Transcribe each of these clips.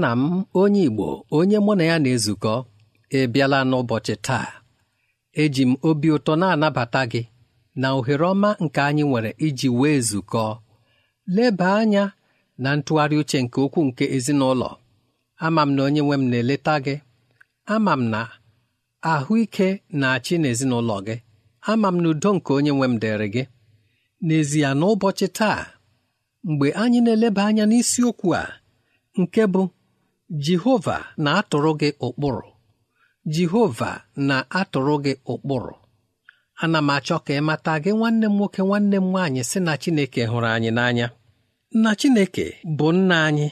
nna m onye Igbo onye mụ na ya na-ezukọ ebiala n'ụbọchị taa eji m obi ụtọ na-anabata gị na ohere ọma nke anyị nwere iji wee zukọ. leba anya na ntụgharị uche nke okwu nke ezinụlọ ama m na onye nwe m na-eleta gị ama m na ahụike na-achị n'ezinụlọ gị ama m na udo nke onye nwe m dịrị gị n'ezie n'ụbọchị taa mgbe anyị na-eleba anya n'isiokwu a nke bụ jehova na-atụrụ gị ụkpụrụ jehova na-atụrụ gị ụkpụrụ ana m achọ ka ị gị nwanne m nwoke nwanne m nwanyị si na chineke hụrụ anyị n'anya na chineke bụ nna anyị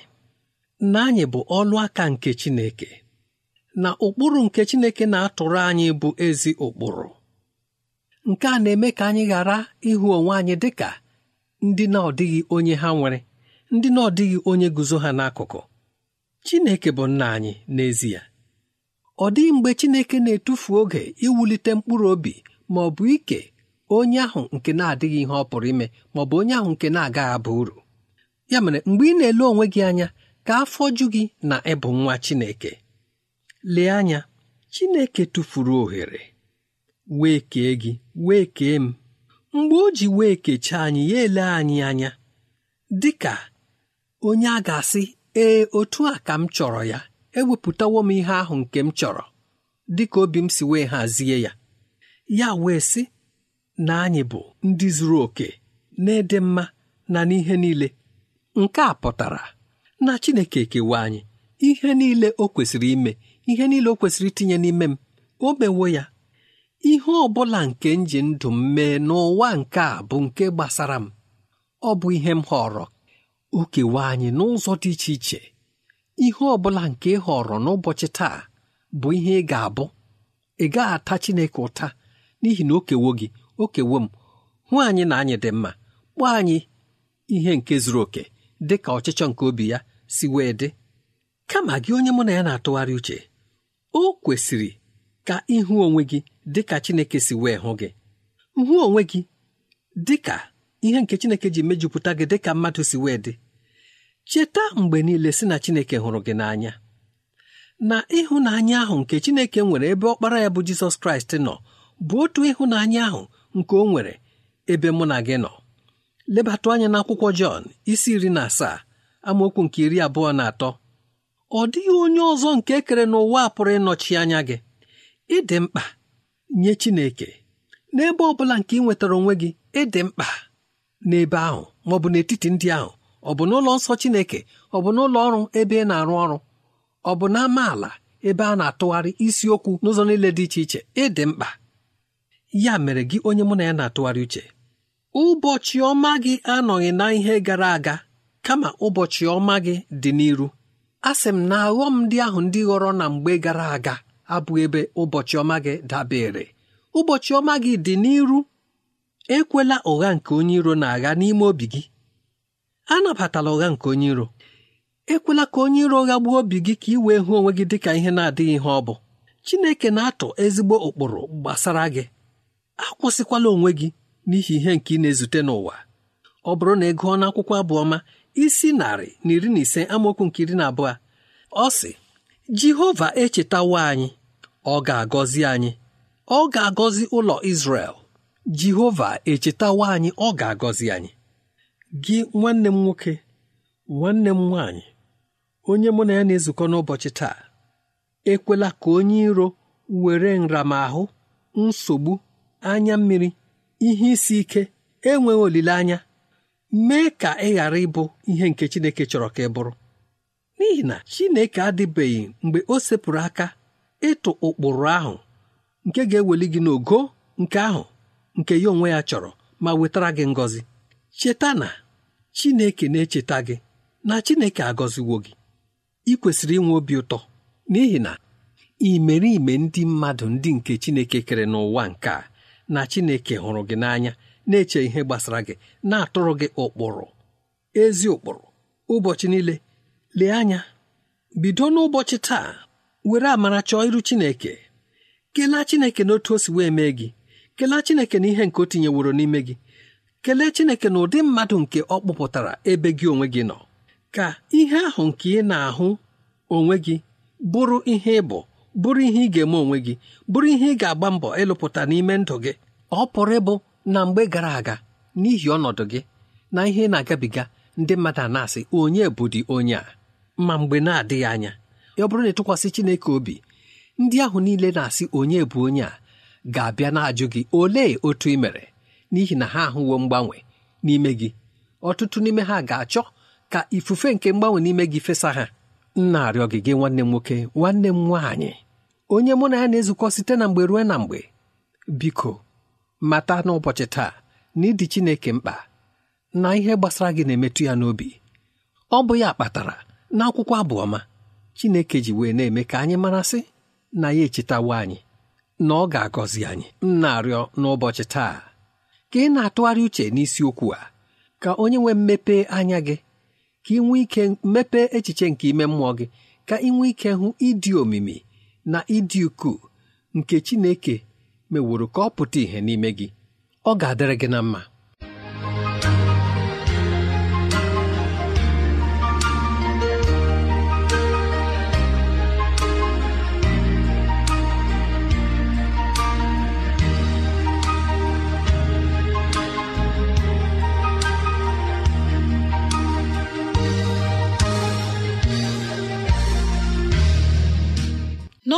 nna anyị bụ ọlụ aka nke chineke na ụkpụrụ nke chineke na-atụrụ anyị bụ ezi ụkpụrụ nke a na-eme ka anyị ghara ịhụ onwe anyị dị ka ndị na-ọdịghị onye ha nwere ndị na-ọdịghị onye guzo ha n'akụkụ Chineke bụ nna anyị n'ezie ọ dịghị mgbe Chineke na-etufu oge iwulite mkpụrụ obi ma ọ bụ ike onye ahụ nke na-adịghị ihe ọ pụrụ ime ma ọ bụ onye ahụ nke na-agaghị aba uru ya mere mgbe ị na-ele onwe gị anya ka afọ ju gị na ịbụ nwa Chineke lee anya Chineke tụfuru ohere wee kee gị wee kee m mgbe o ji wee kechaa anyị ya ele anyị anya dị ka onye a ga-asị ee otu a ka m chọrọ ya ewepụtawo m ihe ahụ nke m chọrọ dịka obi m si wee hazie ya ya wee sị na anyị bụ ndị zuru oke na-ede mma na n'ihe niile nke a pụtara na Chineke ekewa anyị ihe niile o kwesịrị ime ihe niile o kwesịrị itinye n'ime m o mewo ya ihe ọ bụla nke m ji ndụ m mee n'ụwa nke a bụ nke gbasara m ọ bụ ihe m họrọ o anyị n'ụzọ dị iche iche ihe ọ bụla nke ị họrọ n'ụbọchị taa bụ ihe ị ga-abụ ị gaghị ata Chineke ụta n'ihi na o kewo gị o m hụ anyị na anyị dị mma kpọọ anyị ihe nke zuru oke dị ka ọchịchọ nke obi ya si wee dị kama gị onye mụ na ya na-atụgharị uche o kwesịrị ka ịhụ onwe gị dị Chineke si wee hụ gị hụ onwe gị dị ihe nke chineke ji mejupụta gị dị ka mmadụ si wee dị cheta mgbe niile si na chineke hụrụ gị n'anya na ịhụnanya ahụ nke chineke nwere ebe ọkpara ya bụ jizọs kraịst nọ bụ otu ịhụnanya ahụ nke o nwere ebe mụ na gị nọ lebatụ anya n'akwụkwọ jọn isi iri na asaa amaokwu nke iri abụọ na atọ ọ dịghị onye ọzọ nke ekere kere n'ụwa a pụrụ ịnọchi anya gị ịdị mkpa nye chineke n'ebe ọ bụla nke ị nwetara onwe gị ịdị mkpa n'ebe ahụ ma ọ bụ n'etiti ndị ahụ ọ bụ n'ụlọ nsọ Chineke ọ bụ n'ụlọ ọrụ ebe ị na-arụ ọrụ ọ bụ ala ebe a na-atụgharị isiokwu n'ụzọ niile dị iche iche ịdị mkpa ya mere gị onye mụ na ya na-atụgharị uche ụbọchị ọma gị anọghị na ihe gara aga kama ụbọchị ọma gị dị n'iru a sị m na aghọm ndị ahụ ndị ghọrọ na mgbe gara aga abụghị ebe ụbọchị ọma gị dabere ụbọchị ọma gị dị n'iru ekwela ụgha nke onye iro na-agha n'ime obi gị anabatala ụgha nke onye iro ekwela ka onye iro ụgha gbuo obi gị ka ị wee hụ onwe gị dị ka ihe na-adịghị ihe ọ bụ Chineke na-atụ ezigbo ụkpụrụ gbasara gị akwụsịkwala onwe gị n'ihi ihe nke ị na-ezute n'ụwa ọ bụrụ na ị gụọ n'akwụkwọ abụọma isi narị na iri na ise amaokwu nke iri na abụọ ọ sị Jehova echetawo anyị ọ ga-agọzi anyị ọ ga-agọzi ụlọ Izrel jehova echetawa anyị ọ ga-agọzi anyị gị nwanne m nwoke nwanne m nwaanyị onye mụ na ya na-ezukọ n'ụbọchị taa ekwela ka onye iro were nramahụ nsogbu anya mmiri ihe isi ike enweghị olileanya mee ka ị ghara ịbụ ihe nke Chineke chọrọ ka ị bụrụ n'ihi na Chineke adịbeghị mgbe o sepụrụ aka ịtụ ụkpụrụ ahụ nke ga-eweli gị n'ogo nke ahụ nke ya onwe ya chọrọ ma wetara gị ngọzi cheta na Chineke na-echeta gị na Chineke agọziwo gị ị kwesịrị inwe obi ụtọ n'ihi na imerime ndị mmadụ ndị nke Chineke kere n'ụwa nke a na Chineke hụrụ gị n'anya na-eche ihe gbasara gị na-atụrụ gị ụkpụrụ ezi ụkpụrụ ụbọchị niile lee anya bido n'ụbọchị taa were amara chọọ iru Chineke kelee Chineke n'otu o si wee mee gị kelee chineke na ihe nke o tinyeworo n'ime gị kelee chineke na ụdị mmadụ nke ọ kpụpụtara ebe gị onwe gị nọ ka ihe ahụ nke ị na-ahụ onwe gị bụrụ ihe ị bụ bụrụ ihe ị ga-eme onwe gị bụrụ ihe ị ga-agba mbọ ịlụpụta n'ime ndụ gị ọ pụrụ ịbụ na mgbe gara aga n'ihi ọnọdụ gị na ihe ị na-agabiga ndị mmadụ a na-asị onye bụ dị onye a ma mgbe na-adịghị anya ọ bụrụ na ịtụkwasị Chineke obi ndị ahụ niile na-asị onye bụ onye a ga-abịa na-ajụ gị olee otu ị mere n'ihi na ha ahụwo mgbanwe n'ime gị ọtụtụ n'ime ha ga-achọ ka ifufe nke mgbanwe n'ime gị fesa ha nna arịọ gị gị nwanne m nwoke nwanne m nwaanyị onye mụ na ya na-ezukọ site na mgbe ruo na mgbe biko mata n'ụbọchị taa na ịdị Chineke mkpa na ihe gbasara gị na-emetụ ya n'obi ọ bụ ya kpatara na akwụkwọ abụọma Chineke ji wee na-eme ka anyị marasị na ya echetawo anyị na ọ ga-agọzi anyị m n'ụbọchị taa ka ị na-atụgharị uche n'isiokwu a ka onye nwee mmepe anya gị ka ị nwee ike mmepe echiche nke ime mmụọ gị ka ị nwee ike hụ ịdị omimi na ịdị ukwuu nke Chineke meworo ka ọ pụta ìhè n'ime gị ọ ga-adịrị gị na mma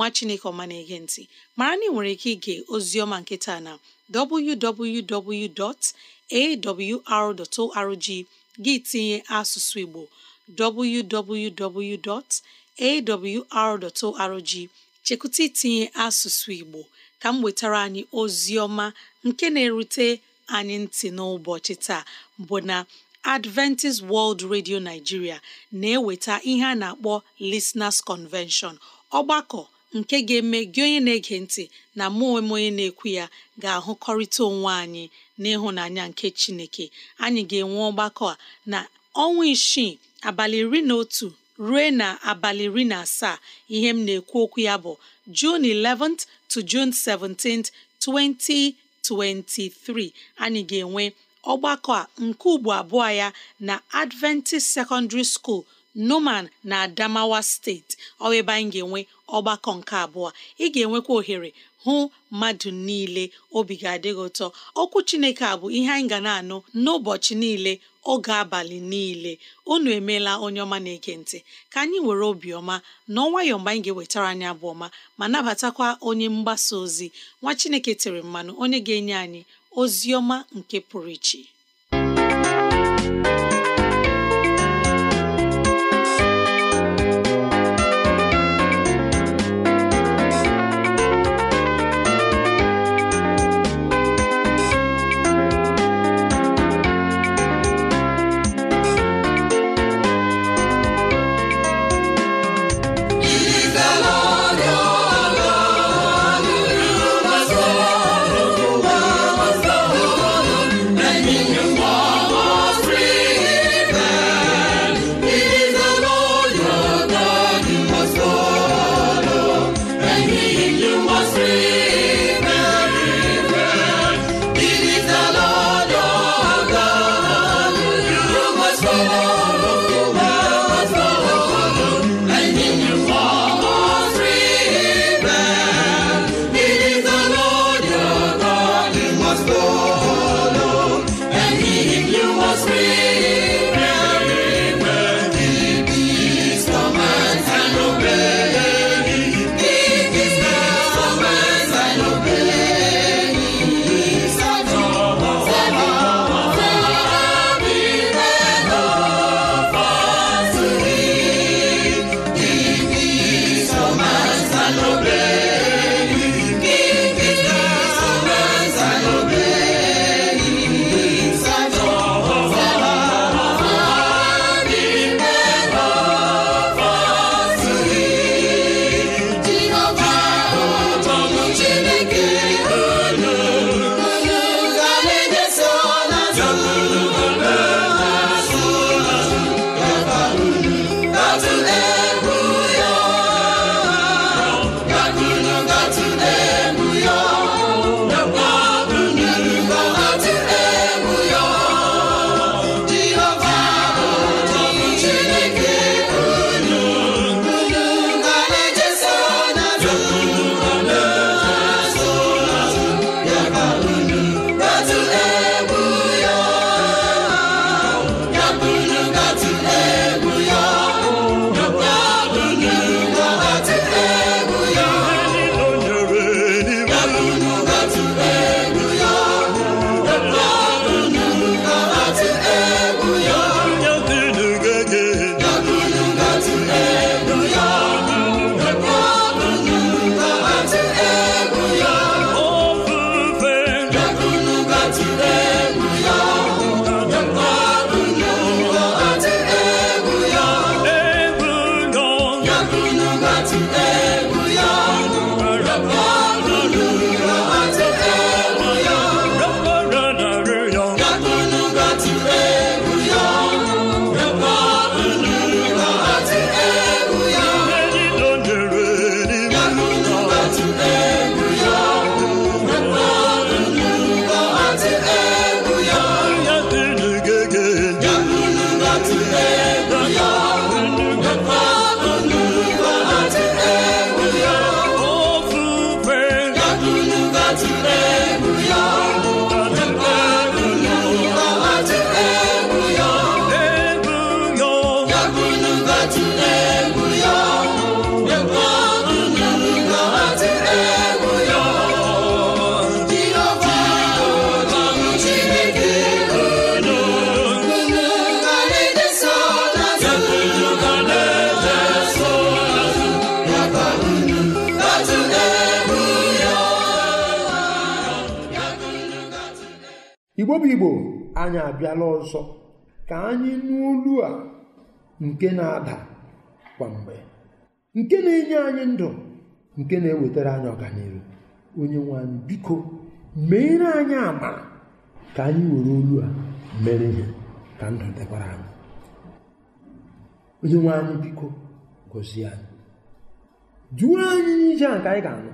nwa chineke ọma na-ege ntị mara na ị nwere ike ige ozioma nke taa na www.awr.org gị tinye asụsụ igbo www.awr.org chekwụta itinye asụsụ igbo ka m wetara anyị ozioma nke na-erute anyị ntị n'ụbọchị taa bụ na Adventist World Radio Nigeria na-eweta ihe a na-akpọ lesnars Convention ọgbakọ nke ga-eme gị onye na-ege ntị na mụ onwe onye na-ekwu ya ga-ahụkọrịta onwe anyị n'ịhụnanya nke Chineke anyị ga-enwe ọgbakọ a na ọnwa isii abalị iri na otu ruo na abalị iri na asaa ihe m na-ekwu okwu ya bụ jun 11th to June 17th 2023 anyị ga-enwe ọgbakọ a nke ugbo abụọ ya na Adventist Secondary School. Numan na Adamawa steeti ọ ebe anyị ga-enwe ọgbakọ nke abụọ ị ga-enwekwa ohere hụ mmadụ niile obi ga adịghị ụtọ okwu Chineke a bụ ihe anyị ga na-anụ n'ụbọchị niile oge abalị niile unu emeela onye ọma na-ege ntị ka anyị were obiọma na ọnwayọ mgbe anyị ga-ewetara anyị abụ ọma ma nabatakwa onye mgbasa ozi nwa Chineke tiri mmanụ onye ga-enye anyị ozi ọma nke pụrụ iche igbo bụ igbo anyị abịala ọzọ ka anyị nụ olu a nke na-ada kwa mgbe nke na-enye anyị ndụ nke na-ewetara anyị ọganihu onye nwe anyị biko meere anyị amara ka anyị were olu a mere ihe ka ndụ dịkwara anyị onye nwe anyị biko gozie anyị jụọ anyị n'ije a nke anyị ga-anụ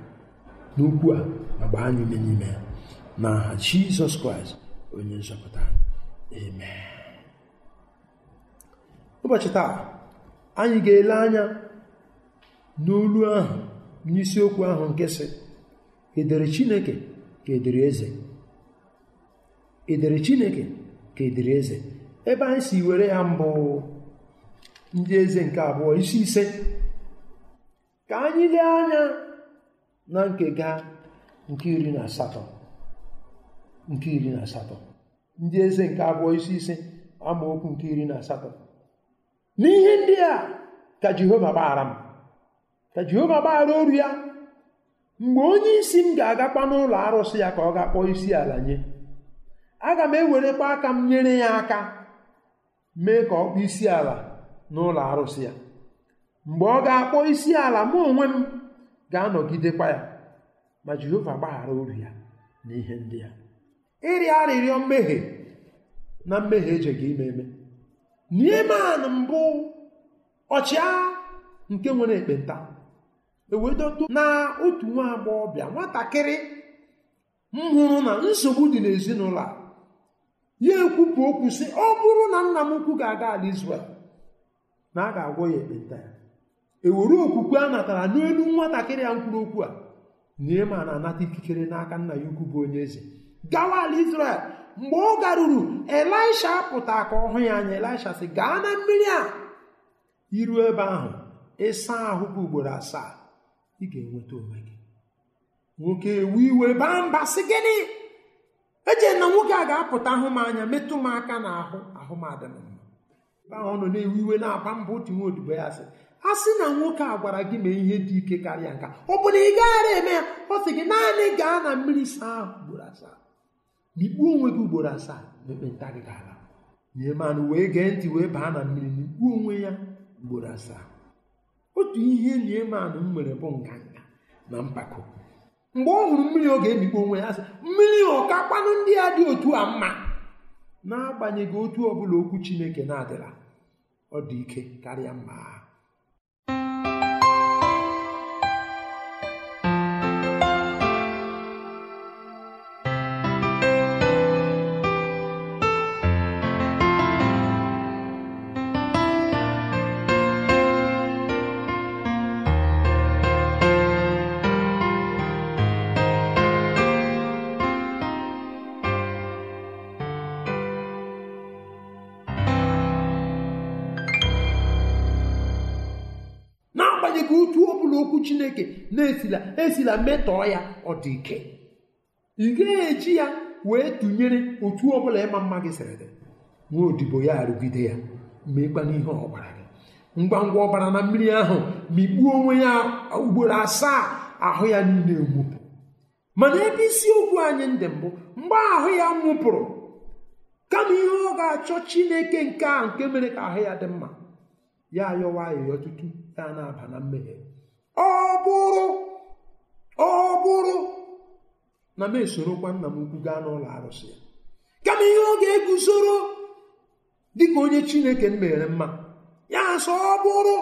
n'okwu a ma gbaa anyị ume n'ime ya na Jizọs Kraịst onye nzọpụta amen ụbọchị taa anyị ga-ele anya n'olu ahụ n'isiokwu ahụ nke si edere chineke ka edere eze edere chineke ka eze ebe anyị si were ya mbụ ndị eze nke abụọ isi ise ka anyị lee anya na nke ga nke iri na asatọ nke iri na asatọ ndị eze nke abụọ isi ise amaokwu nke iri na asatọ n'ihe ndị a ka jehova gbaghara m ka jehova gbaghara oru ya mgbe onye isi m ga-agakwa n'ụlọ arụsị ya ka ọ ga-akpọ isi ala nye aga m ewerekwa aka m nyere ya aka mee ka ọ kpọọ isi ala n'ụlọ arụsị ya mgbe ọ ga-akpọ isi ala mụ onwe m ga-anọgidekwa ya ma jehova gbaghara oru ya n'ihe ndị a ịrịọ arịrịọ mmehie na mmehie ejeghị ime eme Neeman mbụ ọchịagha nke nwere ekpenta ewedodo na otu nwa agbọghọbịa nwatakịrị m hụrụ na nsogbu dị n'ezinụlọ a ya ekwupụ okwu sị ọ bụrụ na nna m ukwu ga-aga ala Izrel na a ga-agwọ ya ekpenta ya ewere okwukwe a natara n'elu nwatakịrị ya mkpụrụ okwu a na anata ikikere n'aka nna ya ukwu bụ onye eze gawa ala israel mgbe ọ garuru elisha pụta ka ọ hụ ya anya elisha sị gaa na mmiri a iru ebe ahụ ịsa ahụ gị ugboro asaa ị ga-enweta onwe gị nwoke ewu iwe baa mba sị gịnị eche na nwoke a ga-apụta ahụ m anya metụ m aka na ahụ ahụ m adịm mma ọ nọ na-ewu iwe na-aba mba otu ya sị a sị na nwoke a gwara gị mee ihe dị ike karịa nka ọ bụ na ị gaghara eme ya ọ sị gị naanị gaa na mmiri saa ahụ ugboro asaa n'ikpuo onwe gị ugboro asaa na ekpenta gị ga-ala nye manụ wee gee ntị wee baa na mmiri n'ikpuo onwe ya ugboro asaa otu ihe niemanụ m nwere bụ nganga na mpako mgbe ọ hụrụ mmiri ọ ga-emikpo onwe ya sị mmiri ọkakpanụ ndị a dị otu a mma n'agbanyeghị otu ọbụla okwu Chineke na-adịla ọ dị ike karịa mma na-esila esila metọọ ya ọ dị ike ị ga-eji ya wee tụnyere otu ọbụla ịma mma gị sịrị gị nwa odibo ya arụgide ya meekwana ihe ọ gị ngwa ngwa ọbara na mmiri ahụ mikpuo onwe ya ugboro asaa ahụ ya niile nwụpụ mana ebe isiokwu anyị ndị mbụ mgbe ahụ ya nwụpụrụ kama ihe ọ ga-achọ chineke nke a nke mere ka ahụ ya dị mma ya ayọwa ayọyọ ọtụtụ ya na-aba na mmehie ọ bụrụ ọ bụrụ na m esorokwa nna m ukwu gaa n'ụlọ arụsị ya kama ihe ọ ga-eguzoro dịka onye chineke m mere mma ya sọ ọ bụrụ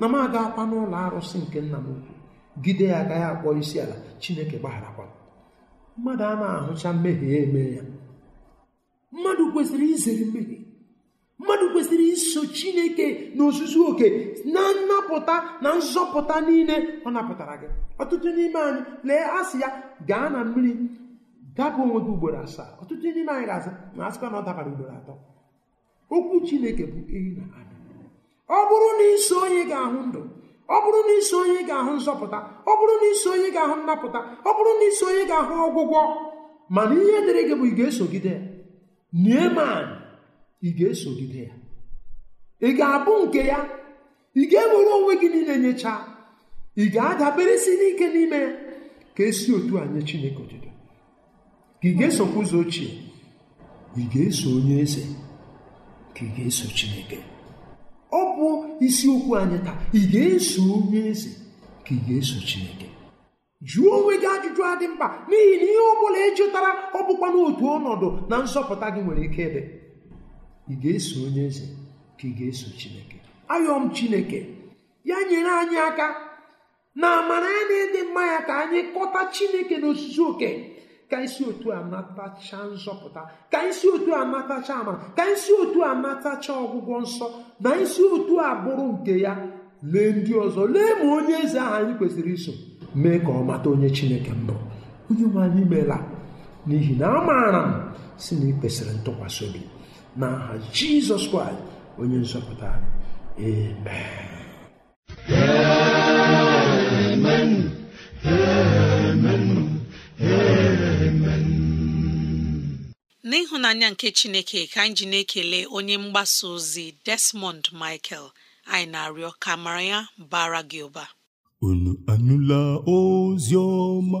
na m agakwa n'ụlọ arụsị nke nna m ukwu gide ya agaghị akpọ isi ala chineke gbagharakwa mmadụ a na-ahụcha mmehie eme ya mmadụ kwesịrị izere mmehie mmadụ kwesịrị iso chineke na ozuzu oke na nnapụta na nzọpụta niile ọ napụtara gị ọtụtụ n'ime anyị lee asị ya gaa na mmiri dapụ onwe gị ugboro asaa ọtụtụ n'ime anyị ga-asị na asịkwa na ọ dabara ugboro atọ okwu chineke bụ ehi na ada ọ bụrụ na iso onye ga-ahụ ndụ ọ bụrụ na iso onye ga-ahụ nzọpụta ọ bụrụ na iso onye ga-ahụ nnapụta ọ bụrụ na iso onye ga-ahụ ọgwụgwọ mana ihe dịrị gị bụ ị ga-esogide neeman ị ga-esogide ya ị ga-abụ nke ya ị ga-ewere onwe gị niile nyechaa ị ga-adaberesi n'ike n'ime ya ka esi otu a nye Chineke otuto ka ị ga-esokwa ụzọ ochie ị ga-eso onye eze ka ị ga-eso Chineke ọ bụ isiokwu anyị taa ị ga-eso onye eze ka ị ga-eso Chineke jụọ onwe gị ajụjụ adị mkpa n'ihi na ihe ọ bụla ị jụtara ọ bụkwa n'otu ọnọdụ na nzọpụta gị nwere ike ịdị ị ga-eso onye eze ka ị ga-eso chineke ayọm chineke ya nyere anyị aka na amara ya na ịdị mma ya ka anyị kọta chineke n'osisi oke ka isi otu a natacha nzọpụta ka isi otu a natacha amara ka isi otu a natacha ọgwụgwọ nsọ na isi otu a bụrụ nke ya lee ndị ọzọ lee ma onye eze ahụ anyị kwesịrị iso mee ka ọ mata onye chineke mbụ onye nwe anyị meela n'ihi na a maara m si na ị kwesịrị ntụkwasị obi n'aha jizọs kraịst onye nzọpụta amen n'ịhụnanya nke chineke ka anyị ji na-ekele onye mgbasa ozi desmond michael anyị na-arịọ ka mara ya bara gị ụba unu anụla ozi ọma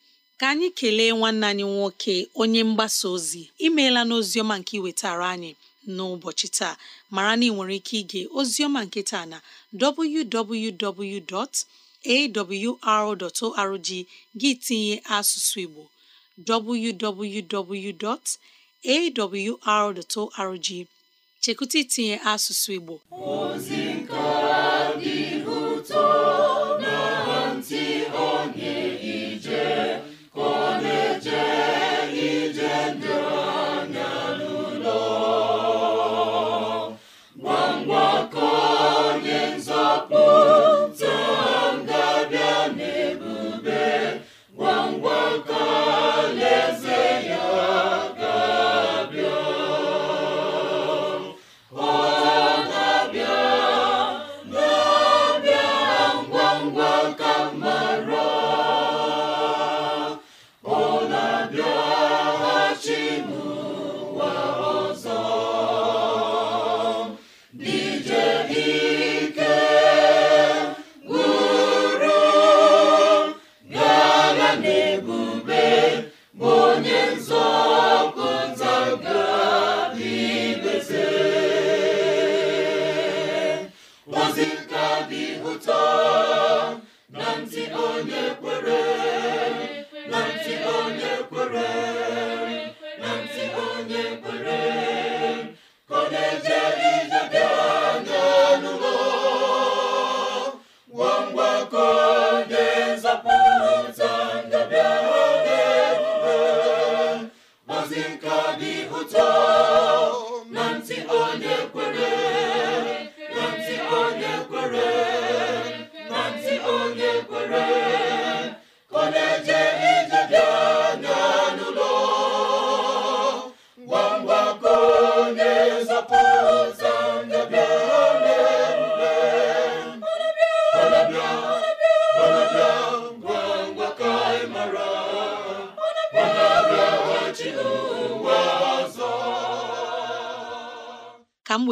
ka anyị kelee nwanne anyị nwoke onye mgbasa ozi imeela n'oziọma nke iwetara anyị n'ụbọchị taa mara na ị nwere ike ige ozioma nke taa na www.awr.org gị tinye asụsụ Igbo www.awr.org chekụta itinye asụsụ Igbo ozi nke dị ụtọ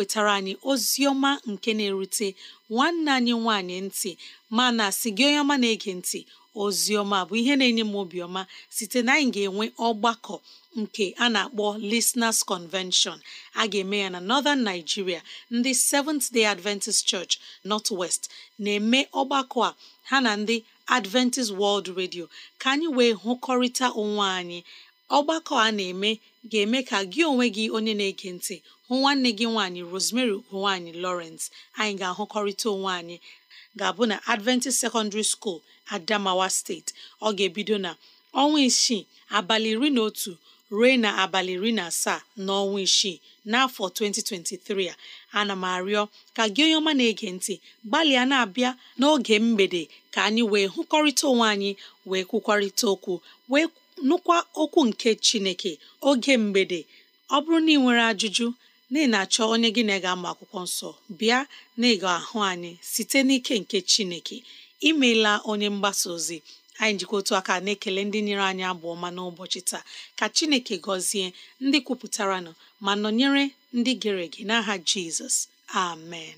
wetara anyị ozi ọma nke na-erute nwanne anyị nwanyị ntị mana si gị onye ọma na-ege ntị ozi ọma bụ ihe na-enye m obiọma site na anyị ga-enwe ọgbakọ nke a na-akpọ Listeners Convention a ga-eme ya na Northern Nigeria ndị Seventh Day Adventist Church North West na-eme ọgbakọ a ha na ndị Adventist World Radio ka anyị wee hụkọrịta onwe anyị ọgbakọ a na-eme ga-eme ka gị onwe gị onye na-ege ntị hụ nwanne gị nwaanyị Rosemary ugonwaanyị Lawrence anyị ga-ahụkọrịta onwe anyị ga-abụ na Adventist Secondary School Adamawa steeti ọ ga-ebido na ọnwa isii abalị iri na otu ruo na abalị iri na asaa n'ọnwa isii n'afọ 2023 a ana m arịọ ka gị onye ọma na-ege ntị gbalịa na-abịa n'oge mgbede ka anyị wee hụkọrịta onwe anyị wee kwukwarịta okwu wee nụkwa okwu nke chineke oge mgbede ọ bụrụ na ị nwere ajụjụ na ị na-achọ onye gị na ga-ama akwụkwọ nsọ bịa na ịga ahụ anyị site n'ike nke chineke imeela onye mgbasa ozi anyị njikọ otu aka na-ekele ndị nyere anyị abụ ọma n'ụbọchị taa ka chineke gọzie ndị kwupụtaranụ ma nọnyere ndị gere ege n'aha jizọs amen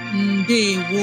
ndewo